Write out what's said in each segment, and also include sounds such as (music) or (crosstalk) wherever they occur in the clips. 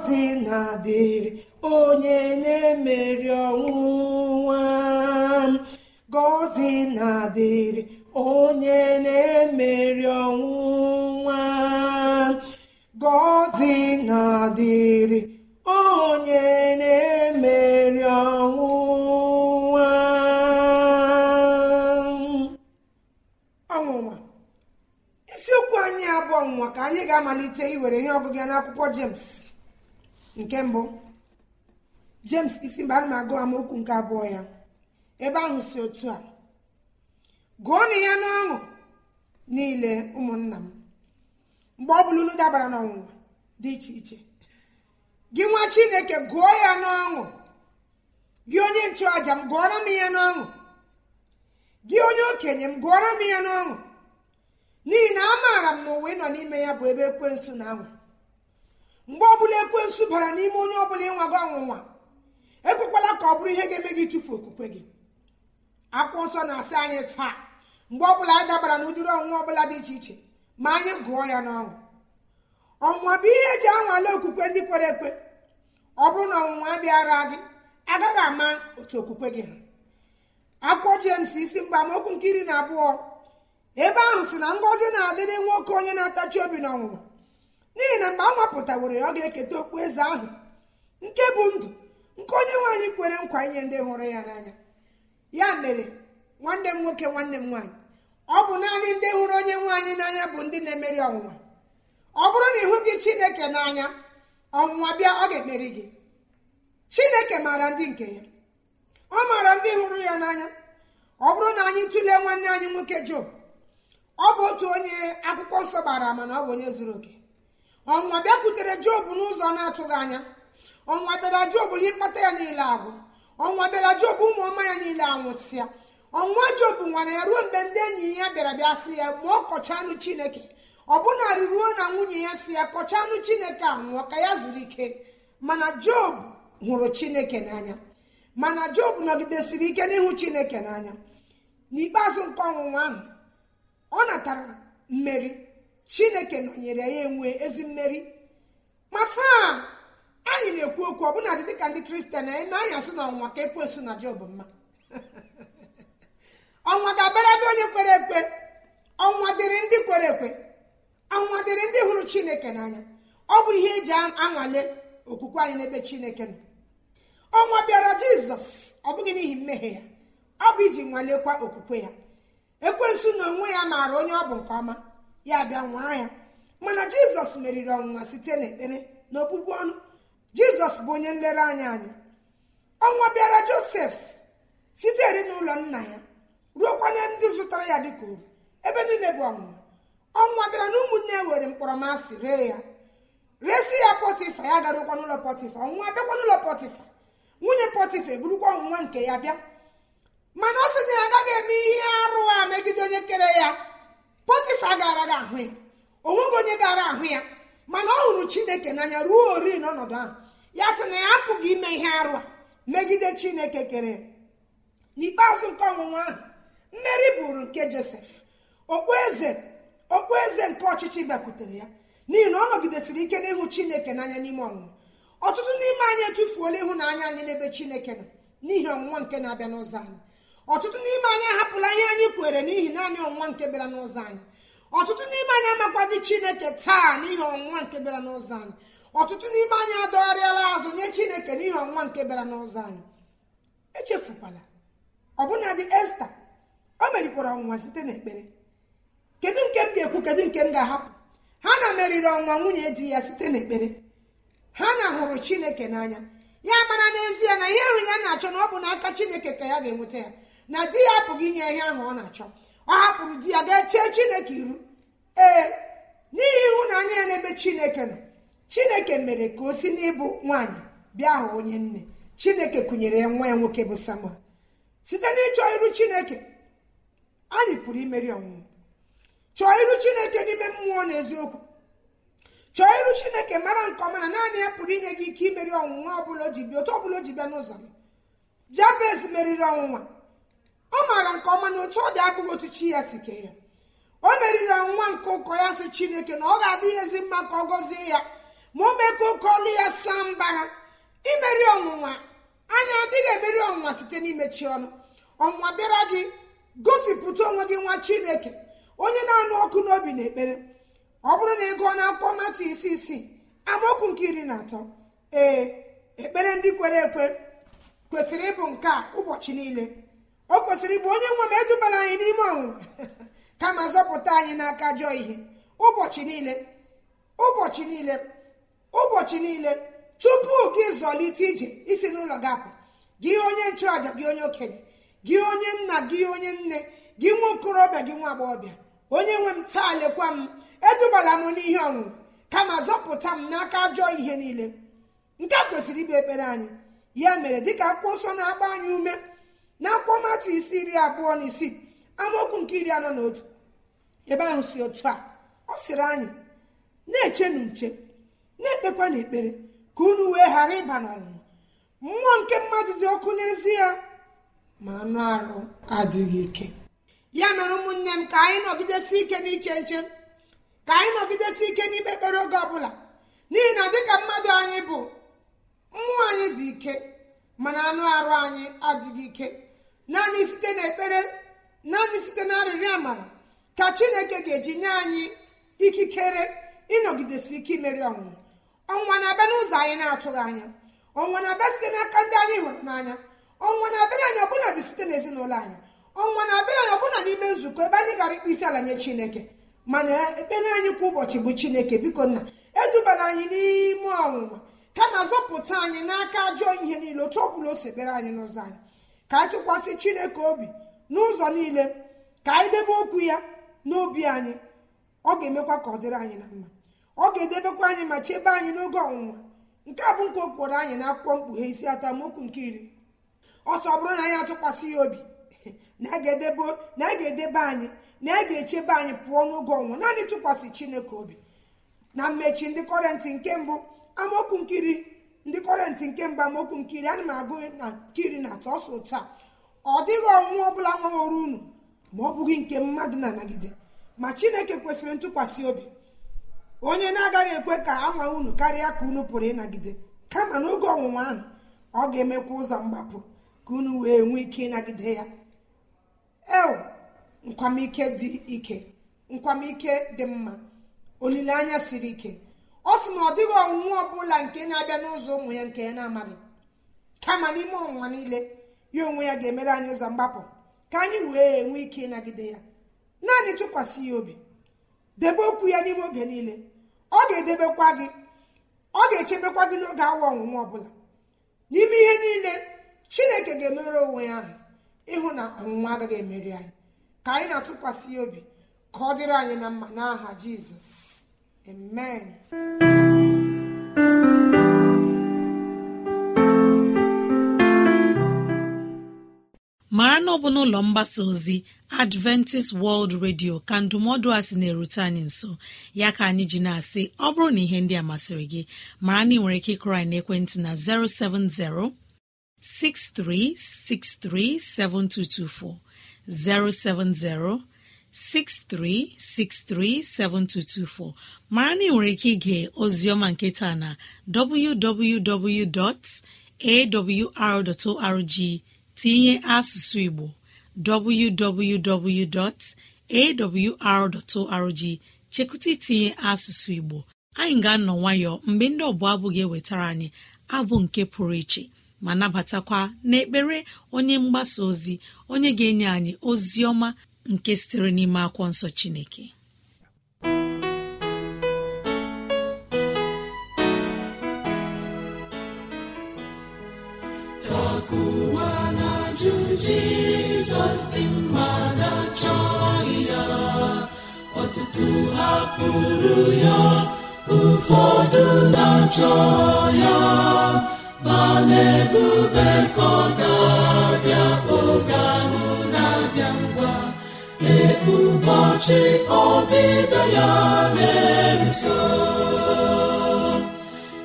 ngọzị na-adịrị onye na-emeri nwa ngọzị na-adịrị onye na-emeri nwa ngọzị na-adịrị onye na-emeri nwa ọnwụnwa isiokwu anyị abụọ nwa ka anyị ga-amalite iwere ihe ọgụgụ ya n'akwụkwọ James nke mbụ james isi mgbe ana m agụ amaokwu nke abụọ ya ebe ahụ si otu a gụọnụ ya n'ọṅụ niile ụmụnna m mgbe ọ bụla unu dabara n'ọnwụnwa dị iche iche gị nwa chineke gụọ ya n'ọṅụ gị onye nchụàja m gụọrọ m ihe n'ọṅụ gị onye okenye m gụọrọ m ihe n'ọṅụ n'ihi na amaara m na ụwa ị nọ n'ime ya bụ ebe ekwensu na anwụ mgbe ọbụla ekwensụ bara n'ime onye ọbụla ịnwago ọnwụnwa ekwekwala ka ọ bụrụ ihe ga-eme gị tufu okwukwe gị akwụkwọ nsọ na-asị anyị taa mgbe ọbụla a dabara na ụdịrị ọnwụnwa ọbụla dị iche iche ma anyị gụọ ya n'ọnwụ ọnwụnwa bụ ihe eji anwale okwukwe ndị kwere ekwe ọ bụrụ na ọnwụnwa abịara gị agaghị ama otu okwukwe gị ha akwụkwọ jems isi mgba amaokwu nke iri na abụọ ebe ahụ si na ngọzi na-adị n'enwe nwoke onye na-atachi obi na ọnwụnwa n'ihi na mgbe a nwapụtaworo ya ọ ga-eketa okpu eze ahụ nke bụ ndụ nke onye nwaanyị kwere nkwa inye ndị hụrụ ya n'anya ya mere nwanne m nwoke nwanne m nwaanyị ọ bụ naanị ndị hụrụ onye nwaanyị n'anya bụ ndị na-emeri ọnwụnwa ọ bụrụ na ịhụ gị chineke n'anya ọnwụnwa bịa ọ ga-emeri gị chineke maara ndị nke ya ọ maara ndị hụrụ ya n'anya ọ bụrụ na anyị tụlee nwanne anyị nwoke job ọ bụ otu onye akwụkwọ nsọ gbara ama na ọ bụ onye zuru oke ọnwa bịakwutere jobu n'ụzọ na-atụghị anya ọnwa bịara jobu ihe mkpata ya niile agwụ ọnwa bịara jobu ụmụ ọma ya niile anwụsịa ọnwa jobu nwara ya ruo mgbe ndị enyi ya bịara bịa sị ya ma ọ kọcha anụ chineke ọbụnarị ruo na nwunye ya si ya kọcha anụ chineke a nwụọ ka ya zuru ike mana job hụrụ chineke n'anya mana job nọgidesiri ike n'ihu chineke n'anya n'ikpeazụ nke ọnwụnwa ahụ ọ natara mmeri chineke nọnyere ya enwe ezi mmeri ma taa anyị na-ekwu okwu ọbụna dị dịka ndị kristian anyị na anyị asị na ọnwa ka ekwensu na job mma (laughs) ọnwa ga-abara onye kwere ekwe ọnwa dịrị ndị kwere ekwe ọnwa dịrị ndị hụrụ chineke n'anya ọ bụ ihe eji anwale okwukwe anyị n'ebe chineke nọ ọnwa bịara jizọs ọ bụghị n'ihi mmehie ya ọ bụ iji nwalekwa okwukwe ya ekwensu na onwe ya maara onye ọ bụ nke ọma ya bịa nwaa ya mana jizọs meriri ọnwụnwa site n'ekpere na ọnụ jizọs bụ onye nlereanya anyị ọnwa bịara josef sitere n'ụlọ nna ya ruokwa na ndị zụtara ya dịka oru ebe niile bụ ọnwụnwa ọnwa bịara na ụmụnne were mkpọrọmasị ree ya resi ya pọtịfa ya garụkwa n'ụlọ pọtịfa ọnwụnwa bịakwa n'ụlọ pọtịfa nwunye pọtịfa eburukwa ọnwụnwa nke ya bịa mana ọ sị na ya agaghị eme ihe arụ a megide onye kere ya pọtịfa gara gị ahụ ya onweghị onye gara ahụ ya mana ọ hụrụ chineke n'anya ruo ori n'ọnọdụ ahụ ya sị na ya apụghị ime ihe arụ a megide chineke kere n'ikpeazụ nke ọnwụnwa ahụ mmeri bụrụ nke josef okpueze okpueze nke ọchịchị bịakwutere ya n'ihi na ọ nọgidesiri ike n'ịhụ chineke n'anya n'ime ọnwụnwa ọtụtụ n'ime anyị etufuola ịhụnanya anyị n'ebe chineke nọ n'ihi ọnwụnwa nke na-abịa n'ụzọ anyị ọtụtụ n'ime anyị ahapụla ihe anyị kweere n'ihi naanị ọnwụnwa nke bịara n'ụzọ anyị ọtụtụ n'ime anyị amakwadị chineke taa n'ihi ọnwa nke bịara n'ụzọ anyị ọtụtụ n'ime anyị adọgharịala azụ nye chineke n'ihi ọnwa nke bịara n'ụzọ anyị echefukwala ọbụna dị esta o merikwara ọnwụnwa site n'ekpere kedu nke m ga-ekwu kedu nke m ga-ahapụ ha na meriri ọnwa nwunye di ya site n'ekpere ha na hụrụ chineke n'anya ya mara n'ezie na ihe ahụ ya na-achọ na ọ bụ n'aka chineke ka ya ga-enweta ya na di ya apụghị inye ihe ahụ ọ na-achọ ọ hapụrụ di ya gaa chee chineke iru ee n'ihi ịhụnanya ya n'ebe chineke nọ chineke mere ka o si n'ịbụ nwaanyị bịa hụ onye nne chineke kụnyere ya nwa ya nwoke bụ samuel site n'ịchọ iru chineke anyị pụrụ imeri ọnwụnwụ chọọ iru chineke n'ime mmụọ na eziokwu chọọ iru chineke mara nke ọma na naanị ya pụrụ inye gị ike imeri ọnwụnwa ọbụla o ji bịa otu ọbụla o ji bịa n'ụzọ gị jabez meriri ọnwụnwa ọ maara nke ọma na otu ọ dị abụghị otu chi ya si kee ya o meriri nwa nke ụkọ ya si chineke na ọ ga-adị ihe ezi mma ka ọ gọzie ya ma o mee ka ụkọ ọlụ ya saa mbara imeri ọnwụnwa anya adịghị emeri ọnwụnwa site n'imechi ọnụ ọnwụnwa bịara gị gosipụta onwe gị nwa chineke onye na-anụ ọkụ n'obi na ekpere ọ bụrụ na ị gụọ na akpụkpọ mata isi isii amaokwu nke iri na atọ ee ekpere ndị kwere ekwe kwesịrị ịbụ nke a ụbọchị niile o kwesịrị ịbụ onye nwe m edubara anyị n'ime ọnwụnwa (laughs) kama zọpụta anyị n'aka ajọ ihe ụbọchị niile ụbọchị niile ụbọchị niile tupu gị zọlite ije isi n'ụlọ gị apụ gị onye nchụàja gị onye okenye gị onye nna gị onye nne gị nwa okorobịa gị nwa agbọghọbịa onye nwe m taa lekwa m edubala m n'ihe ọṅụṅụ kama zọpụta m n'aka ajọ ihe niile nke a kwesịrị ịbụ ekpere anyị ya mere dịka akpụkpọ nsọ na-agba anyị ume n'akwụkwọ matụ isi iri abụọ na isii amaokwu nke iri anọ na otu ebe ahụ si otu a ọ sịrị anyị na-echenu nche na-ekpekwa na ekpere ka unu wee ghara ịba n'ọnwụnwa mmụọ nke mmadụ dị ọkụ n'ezie ma anụ arụ adịghị ike ya mere ụmụnne m ka anyị nọgidesi ike n'iche nche ka anyị nọgidesi ike n'ikpe ekpere oge ọbụla n'ihi na dịka mmadụ anyị bụ mmụọ anyị dị ike mana anụ arụ anyị adịghị ike naanị site naanị site na arịrịọ amara ka chineke ga-eji nye anyị ikikere ịnọgidesi ike imeri ọnwụnwa ọnwa na-abịa n'ụzọ anyị na-atụghị anya ọnwa na-abịa site n'aka ndị anyị hụrụ n'anya ọnwa na-abịara anyị ọbụla dị site n'ezinụlọ anyị ọnwa na-abịara anyị ọbụla n'ime nzukọ ebe anyị gara ịkpụ isi ala nye chineke mana ekpere anyị kwa ụbọchị bụ chineke biko nna edubara anyị n'ime ka kama zọpụta anyị n'aka ajọ ihe niile otu ọ bụla o sebere anyị n'ụzọ anyị ka anyị tụkwasị chineke obi n'ụzọ niile ka anyị debe okwu ya n'obi anyị ọ ga-emekwa ka ọ dịrị anyị na mma ọ ga-edebekwa anyị ma chebe anyị n'oge ọnwụnwa nke a bụ nke okporo anyị na akwụkwọ mkpughe isi atamokwu nke iri ọsọ bụrụ na anyị atụkwasị ya obi (laughs) na a ga-edebe anyị na a ga-echebe anyị pụọ n'oge ọnwụ naanị tụkwasị chineke obi na mmechi ndị kọrentị nke mbụ amaokwu nkiri segmenti nke mgbamokwu nkiri ana m agụ na nkiri na atọ otu a ọ dịghị ọnwụ ọbụla nwaworo unu ma ọ bụghị nke mmadụ na-anagide ma chineke kwesịrị ntụkwasị obi onye na-agaghị ekwe ka anwa unu karịa ka unu pụrụ ịnagide kama n'oge ọnwụnwa ahụ ọ ga-emekwa ụzọ mgbapụ ka unu wee nwee ike ịnagide ya eo nkwamike dị ike nkwamike dị mma olileanya siri ike ọ sị na ọ dịghị ọ ọbụla nke na-abịa n'ụzọ ụmụ ya nke ya na-amaghị kama n'ime ọnwụnwa niile ya onwe ya ga-emere anyị ụzọ mgbapụ ka anyị wee nwee ike ịnagide ya naanị tụkwasị ya obi debe okwu ya n'ime oge niile ọ ga-edebekwa gị ọ ga-echebekwa gị n'oge awa ọnwụnwa ọbụla n'ime ihe niile chineke ga-emere onwe ya ahụ ịhụ na ọnwụnwa agaghị emeri anyị ka anyị na-atụkwasị ya obi ka ọ dịrị anyị na mma n'aha jizọs Amen. mara na ọ bụ n'ụlọ mgbasa ozi adventist world radio ka ndụmọdụ a sị na-erute anyị nso ya ka anyị ji na-asị ọ bụrụ na ihe ndị a masịrị gị mara na ị nwere ike ịkụrọ na ekwentị na 070 6363 7224 070 7224 63637224 mara na ị nwere ike ige nke nketa na www.awr.org tinye asụsụ Igbo www.awr.org chekụta itinye asụsụ Igbo anyị ga-anọ nwayọọ mgbe ndị ọbụla abụ ga-ewetara anyị abụ nke pụrụ iche ma nabatakwa n'ekpere onye mgbasa ozi onye ga-enye anyị ozi ọma nke sitere n'ime akwụkwọ nsọ Chineke takuwa na Jizọs dị na chọọ ya ọtụtụ hapụrụ ya ụfọdụ na chọọ ya ma na-ebube ga-abịa oge ụbọchị ọbịbịa ya na-eruso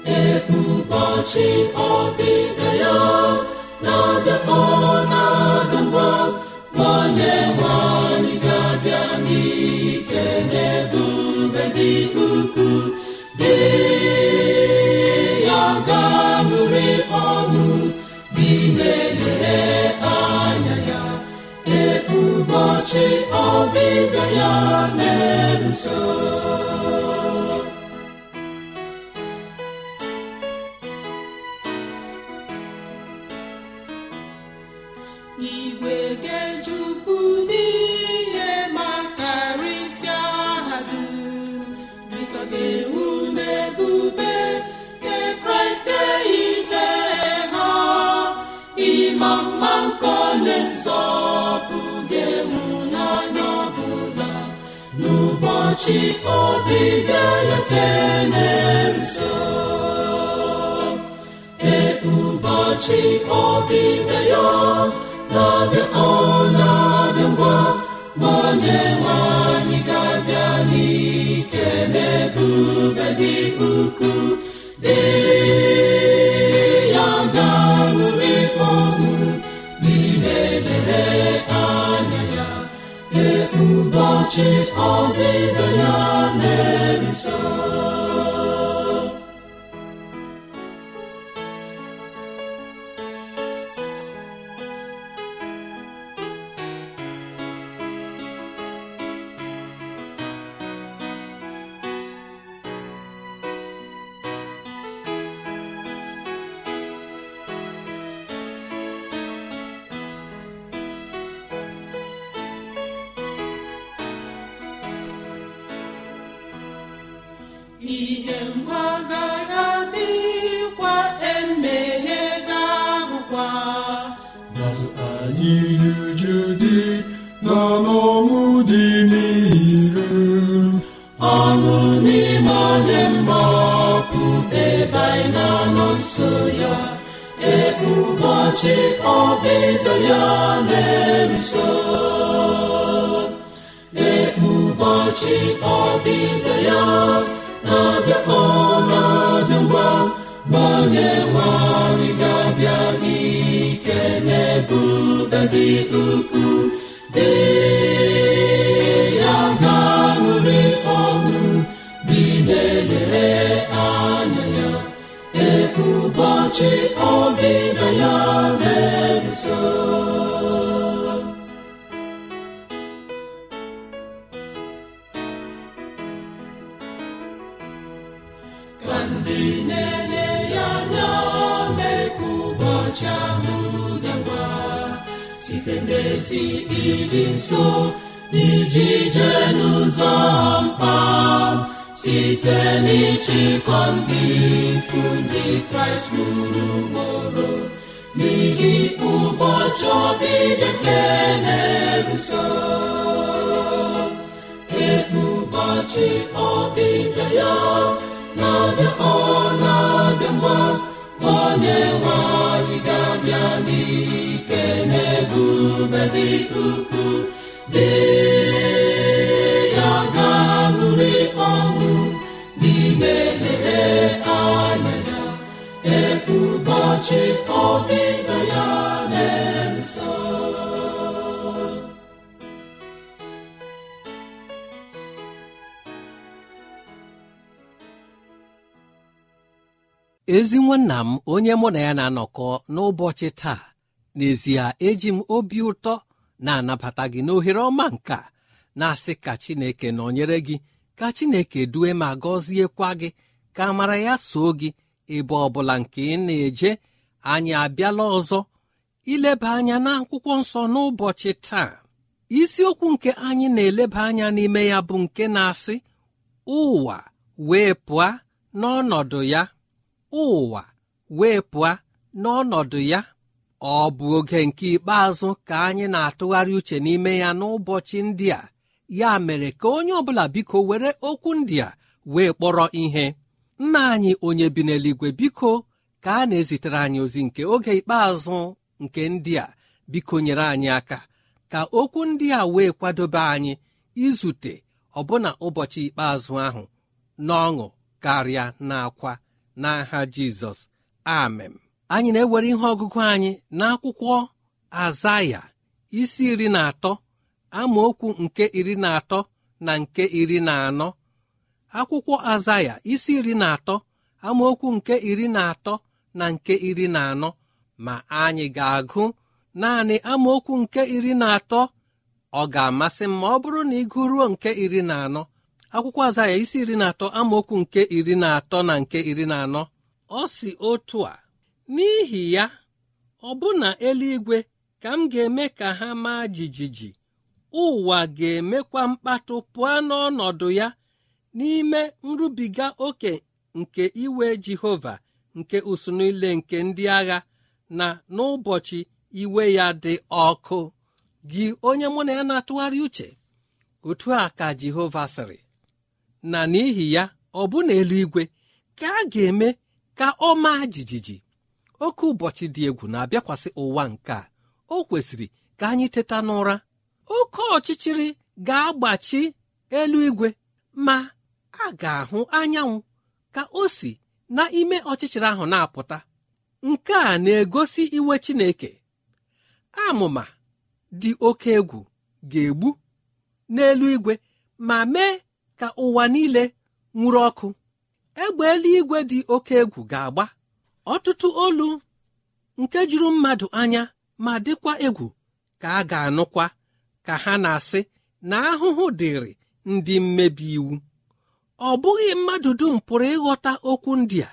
ee ọbịbịa ya na abịakọ na-abịa ngwa onye nwanyị ga-abịa n'ike na-ebube dị ukwuu dị ya ga-anụrị ọnụ ọbịbịa ya na so. ụbọchị ọbịbịa ya kelee nso ee ụbọchị ọbịbịa ya na-abịa ọ na-abịa ngwa nwa ụbọchị ibe ya na akwa n'azụ anyị ọdịda ya ka ndị na-ele ya anya dị site ịdị nso iji jee n'ụzọ mkpa site n'ịchịkọ ndị mfu ndị kraịst gburugburu n'ihi ụbọchị ọbịbịa nke na-eruso ụbọchị ọbịbịa ya na-abịa ọ na-abịa mma onye nwe anyị ga-abịa n'ike n'ebube dị ukwuu dị ụbọchị ya na-eso ezi nwanna m onye mụ na ya na-anọkọ n'ụbọchị taa n'ezie eji m obi ụtọ na-anabata gị n'ohere ọma nke na-asị ka Chineke nọnyere gị ka Chineke due ma gọziekwa gị ka mara ya soo gị ebe ọ bụla nke ị na-eje anyị abịala ọzọ ileba anya n'akwụkwọ nsọ n'ụbọchị taa isiokwu nke anyị na-eleba anya n'ime ya bụ nke na-asị ụwa wee pụa n'ọnọdụ ya ụwa wee pụa n'ọnọdụ ya ọ bụ oge nke ikpeazụ ka anyị na-atụgharị uche n'ime ya n'ụbọchị ndị a ya mere ka onye ọbụla biko were okwu ndị a wee kpọrọ ihe nna anyị onye bi n'eluigwe biko ka a na-ezitere anyị ozi nke oge ikpeazụ nke ndị a biko anyị aka ka okwu ndị a wee kwadobe anyị izute ọbụna ụbọchị ikpeazụ ahụ n'ọṅụ karịa na n'akwa n'aha jizọs amen anyị na-ewere ihe ọgụgụ anyị n'akwụkwọ azaya isi iri na atọ amaokwu nke iri na atọ na nke iri na anọ akwụkwọ azaya isi iri na atọ amaokwu nke iri na atọ na nke iri na anọ ma anyị ga-agụ naanị amaokwu nke iri na atọ ọ ga-amasị m ma ọ bụrụ na ị gụruo nke iri na anọ akwụkwọ aza ya isi iri na atọ amaokwu nke iri na atọ na nke iri na anọ ọ si otu a n'ihi ya ọ ọbụna eluigwe ka m ga-eme ka ha maa jijiji ụwa ga-emekwa mkpatụ pụọ n'ọnọdụ ya n'ime nrubiga oke nke iwe Jehova nke usunu ile nke ndị agha na n'ụbọchị iwe ya dị ọkụ gị onye mụ na ya na-atụgharị uche otu a ka Jehova sịrị na n'ihi ya ọ bụ na eluigwe ka a ga-eme ka ọ maa jijiji oke ụbọchị dị egwu na-abịakwasị ụwa nke a o kwesịrị ka anyị teta n'ụra oke ọchịchịrị ga-agbachi eluigwe ma a ga-ahụ anyanwụ ka o si n'ime ọchịchịrị ahụ na-apụta nke a na-egosi iwe Chineke amụma dị oke egwu ga-egbu n'elu igwe ma mee ka ụwa niile nwụrụ ọkụ egbe eluigwe dị oke egwu ga-agba ọtụtụ olu nke juru mmadụ anya ma dịkwa egwu ka a ga-anụkwa ka ha na-asị na ahụhụ dịrị ndị mmebi iwu ọ bụghị mmadụ dum pụrụ ịghọta okwu ndị a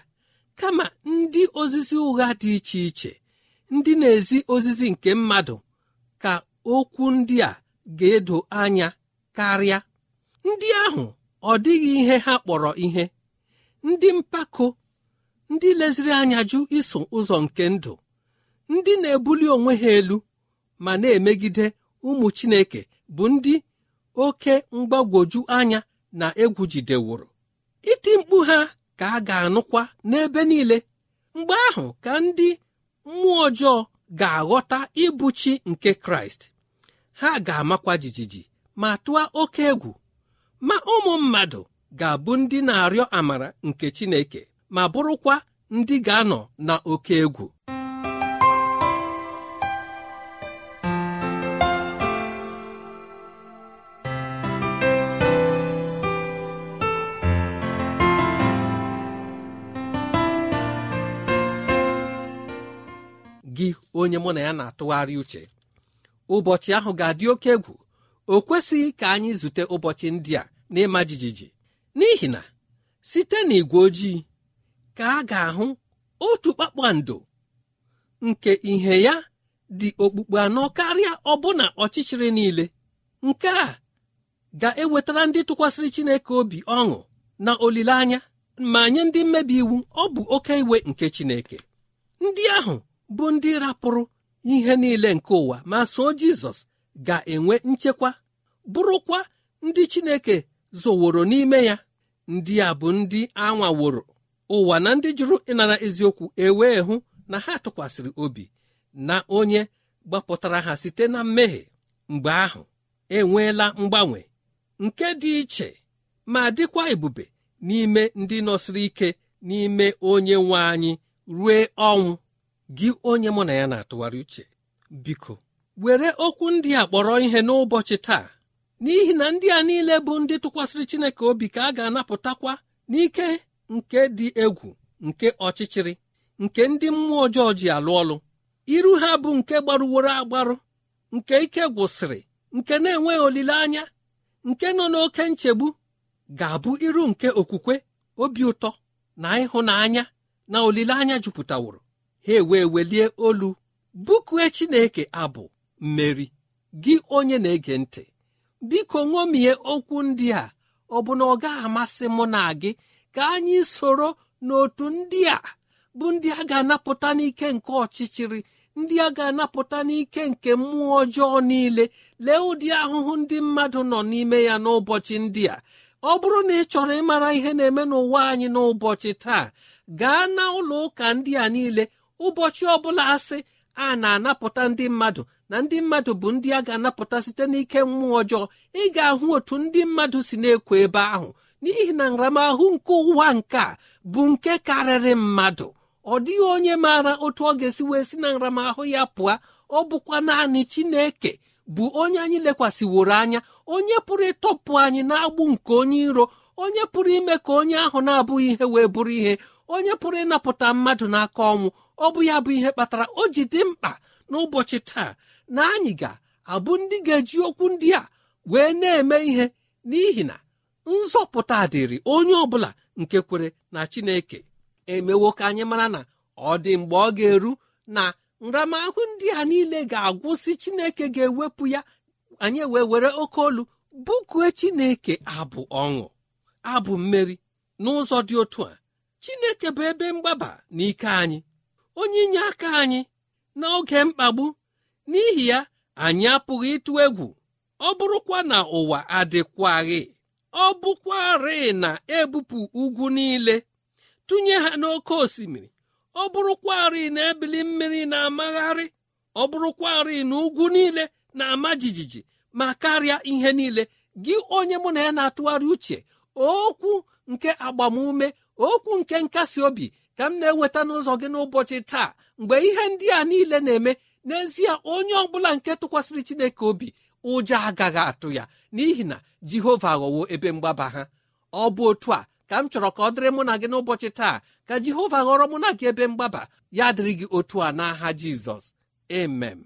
kama ndị ozizi ụgha dị iche iche ndị na-ezi ozizi nke mmadụ ka okwu ndị a ga-edo anya karịa ndị ahụ ọ dịghị ihe ha kpọrọ ihe ndị mpako ndị leziri anya jụ iso ụzọ nke ndụ ndị na-ebuli onwe ha elu ma na-emegide ụmụ Chineke bụ ndị oke mgbagwoju anya na egwu iti mkpu ha ka a ga-anụkwa n'ebe niile mgbe ahụ ka ndị mmụọ ọjọọ ga-aghọta ịbụchi nke kraịst ha ga-amakwa jijiji ma tụọ oke egwu ma ụmụ mmadụ ga-abụ ndị na-arịọ amara nke chineke ma bụrụkwa ndị ga-anọ na oke egwu onye mụ na ya na-atụgharị uche ụbọchị ahụ ga-adị oke egwu o kwesịghị ka anyị zute ụbọchị ndị a n'ịma jijiji n'ihi na site n'ìgwè ojii ka a ga-ahụ otu kpakpando nke ihe ya dị okpukpe anọ karịa ọbụna ọchịchịrị niile nke a ga-ewetara ndị tụkwasịrị Chineke obi ọṅụ na olileanya ma nye ndị mmebi iwu ọ bụ oke iwe nke Chineke ndị ahụ bụ ndị rapụrụ ihe niile nke ụwa ma sọ jizọs ga-enwe nchekwa bụrụkwa ndị chineke zoworo n'ime ya ndị a bụ ndị anwaworo ụwa na ndị jụrụ ịnara eziokwu ewee hụ na ha tụkwasịrị obi na onye gbapụtara ha site na mmehie mgbe ahụ enweela mgbanwe nke dị iche ma dịkwa ebube n'ime ndị nọsịrị ike n'ime onye nwe anyị rue ọnwụ gị onye mụ na ya na-atụgharị uche biko were okwu ndị a kpọrọ ihe n'ụbọchị taa n'ihi na ndị a niile bụ ndị tụkwasịrị Chineke obi ka a ga-anapụtakwa n'ike nke dị egwu nke ọchịchịrị nke ndị mmụọ ọjọọ ji alụ ọlụ iru ha bụ nke gbarụworo agbarụ nke ike gwụsịrị nke na-enweghị olileanya nke nọ n'oke nchegbu ga-abụ iru nke okwukwe obi ụtọ na ịhụnanya na olileanya jupụtaworo ha ewee welie olu bụkue chineke abụ mmeri gị onye na-ege ntị biko ṅomie okwu ndị a ọ bụ na ọ gaghị amasị mụ na gị ka anyị soro n'otu ndị a bụ ndị a ga-anapụta n'ike nke ọchịchịrị ndị a ga-anapụta n'ike nke mmụọ ọjọọ niile lee ụdị ahụhụ ndị mmadụ nọ n'ime ya n'ụbọchị ndị a ọ bụrụ na ị chọrọ ịmara ihe na-eme n'ụwa anyị n'ụbọchị taa gaa na ụlọ ụka ndị a niile ụbọchị ọbụla asị a na-anapụta ndị mmadụ na ndị mmadụ bụ ndị a ga-anapụta site n'ike mmụọ ọjọọ ị ga-ahụ otu ndị mmadụ si na-ekwo ebe ahụ n'ihi na nramahụ nke ụwa nke a bụ nke karịrị mmadụ ọ dịghị onye maara otu ọ ga-esi wee si na nramahụ ya pụọ ọ bụkwa naanị Chineke bụ onye anyị lekwasịworo anya onye pụrụ ịtọpụ anyị na-agbụ nke onye iro onye pụrụ ime ka onye ahụ na-abụghị ihe wee bụrụ ihe onye pụrụ ịnapụta mmadụ n'aka ọnwụ ọ bụ ya bụ ihe kpatara o ji dị mkpa n'ụbọchị taa na anyị ga-abụ ndị ga-eji okwu ndị a wee na-eme ihe n'ihi na nzọpụta dịrị onye ọ bụla nke kwere na chineke emewo ka anyị mara na ọ dị mgbe ọ ga-eru na nramahụ ndị a niile ga-agwụsị chineke ga-ewepụ ya anyị wee were oke olu bụkue chineke abụ ọṅụ abụ mmeri n'ụzọ dị otu a chineke bụ ebe mgbaba na ike anyị onye inye aka anyị n'oge mkpagbu n'ihi ya anyị apụghị ịtụ egwu ọ bụrụkwa na ụwa adịkwaghị ọ bụkwarị na ebupụ ugwu niile tụnye ha n'oké osimiri ọ bụrụkwarị na ebili mmiri na-amagharị ọ bụrụkwarị na ugwu niile na-ama jijiji ma karịa ihe niile gị onye mụ na ya na-atụgharị uche okwu nke agbamume okwu nke nkasi obi ka m na-eweta n'ụzọ gị n'ụbọchị taa mgbe ihe ndị a niile na-eme n'ezie onye ọbụla nke tụkwasịrị chineke obi ụjọ agaghị atụ ya n'ihi na jehova ghọwo ebe mgbaba ha ọ bụ otu a ka m chọrọ ka ọ dịrị mụ na gị n'ụbọchị taa ka jehova ghọrọ mụ na gị ebe mgbaba ya dịrị gị otu a n'aha jizọs emem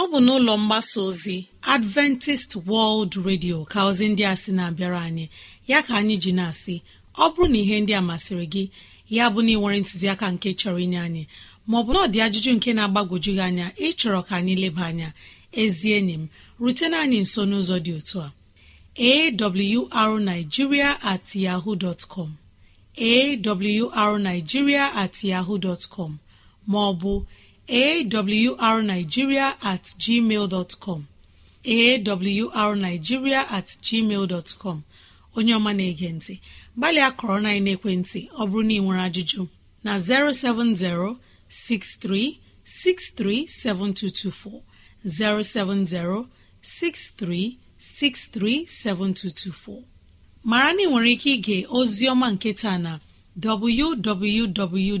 ọ bụ n'ụlọ mgbasa ozi adventist world radio ka ozi ndị a sị na-abịara anyị ya ka anyị ji na-asị ọ bụrụ na ihe ndị a masịrị gị ya bụ na ịnwere ntụziaka nke chọrọ inye anyị maọbụ na ọ dị ajụjụ nke na-agbagwoju gị anya ịchọrọ ka anyị leba anya ezi enyi m rutena anyị nso n'ụzọ dị otu a arigiria at yahoo dot com awrnigeria at yahoo dot com maọbụ awrnigeria at gmail dot com awrnigeria at gmail dot com onye ọma na-ege ntị gbalịa kọrọ na ekwentị ọ bụrụ na ị nwere ajụjụ na 070 6363 7224 070 6363 7224 mara na ị nwere ike ịga ozi ọma nke taa na www.